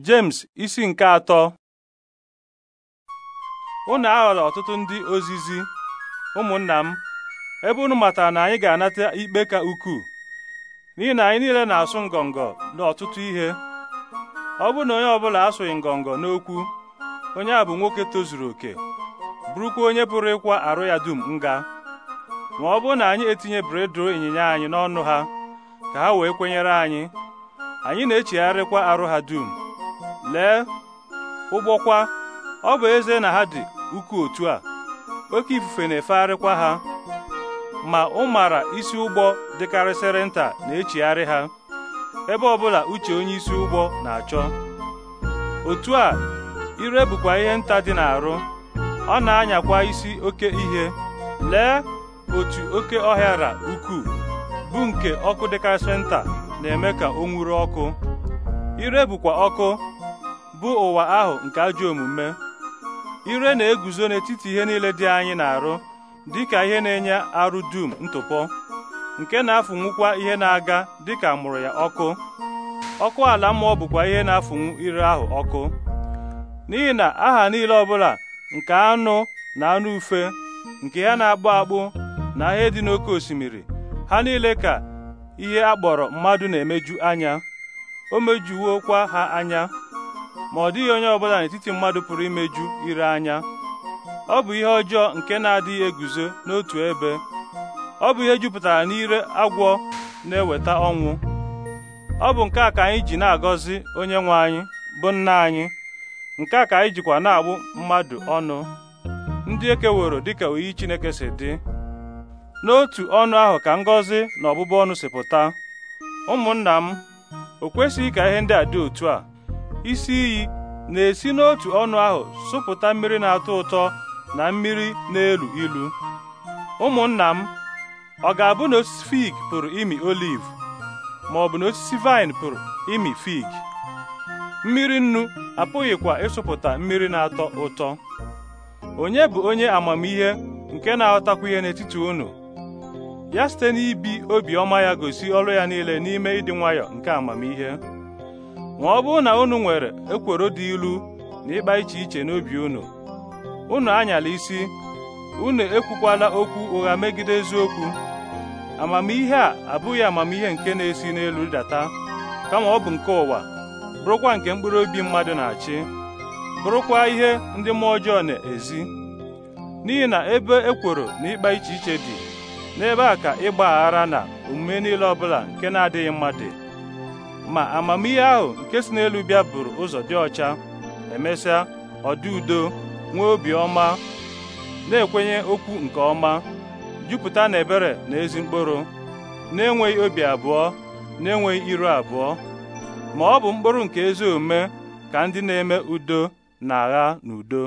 James isi nke atọ unu aghọrọ ọtụtụ ndị ozizi ụmụnna m ebe unu matara na anyị ga-anata ikpe ka ukwuu n'ihi na anyị niile na-asụ ngọngọ n'ọtụtụ ihe ọ bụrụ na onye ọbụla asụghị ngọngọ n'okwu onye a bụ nwoke tozuru oke bụrụkwa onye pụrụ ịkwa arụ ya dum nga ma ọ bụrụ na anyị etinye bredro ịnyịnya anyị n'ọnụ ha ka ha wee kwenyere anyị anyị na-echegharịkwa arụ ha dum lee ụgbọkwa ọ bụ eze na ha dị ukwu otu a oke ifufe na-efegharịkwa ha ma ụmara isi ụgbọ dịkarịsịrị nta na-echigharị ha ebe ọbụla uche onye isi ụgbọ na-achọ otu a ire bụkwa ihe nta dị n'arụ ọ na-anyakwa isi oke ihe lee otu oke ọhịara ukwuu bụ nke ọkụ dịkarịsịrị nta na-eme ka o nwuru ọkụ ire bụkwa ọkụ bụ ụwa ahụ nke ajọ omume ire na-eguzo n'etiti ihe niile dị anyị na-arụ dịka ihe na-enye arụ dum ntụpọ nke na-afụnwukwa ihe na-aga dịka mụrụ ya ọkụ ọkụ ala mmụọ bụkwa ihe na-afụnwu ire ahụ ọkụ n'ihi na aha niile ọbụla nke anụ na anụ ufe nke ya na-akpụ akpụ na ihe dị n'oké osimiri ha niile ka ihe a mmadụ na-emeju anya o mejuwokwa ha anya ma ọ dịghị onye ọbụla n'etiti mmadụ pụrụ imeju ire anya ọ bụ ihe ọjọọ nke na-adịghị eguzo n'otu ebe ọ bụ ihe jupụtara n'ire agwọ na-eweta ọnwụ ọ bụ nke a ka anyị ji na-agọzi onye nwe anyị bụ nna anyị nke a ka anyị jikwa na-agbụ mmadụ ọnụ ndị ekeworo dịka oyi Chineke si dị n'otu ọnụ ahụ ka ngọzi na ọbụbụ ọnụ si pụta ụmụnna m o kwesịghị ka ihe ndị a dị otu a isi iyi na-esi n'otu ọnụ ahụ sụpụta mmiri na-atọ ụtọ na mmiri na-elu ilu ụmụnna m ọ ga-abụ na osisi fig pụrụ imi oliv ma ọ bụ na osisi vaịn pụrụ imi fig mmiri nnu apụghịkwa ịsụpụta mmiri na-atọ ụtọ onye bụ onye amamihe nke na-aghọtakwa ihe n'etiti unu ya site n'ibi obiọma ya gosi ọrụ ya niile n'ime ịdị nwayọ nke amamihe ma ọ bụrụ na unu nwere ekworo dị ilu na ịkpa iche iche n'obi unu unu anyala isi unu ekwukwala okwu ụgha megide eziokwu amamihe a abụghị amamihe nke na-esi n'elu data kama ọ bụ nke ụwa bụrụkwa nke mkpụrụ obi mmadụ na-achị bụrụkwa ihe ndị mmụọ ọjọọ na-ezi n'ihi na ebe ekworo na ịkpa iche iche dị n'ebe a ka ịgba aghara na omume niile ọbụla nke na-adịghị mma dị ma amamihe ahụ nke si n'elu bịa buru ụzọ dị ọcha emesịa ọdị udo nwee obi ọma na-ekwenye okwu nke ọma jupụta na ebere na ezi mkpụrụ na-enweghị obi abụọ na-enweghị iru abụọ ma ọ bụ mkpụrụ nke ezi omume ka ndị na-eme udo na agha n'udo.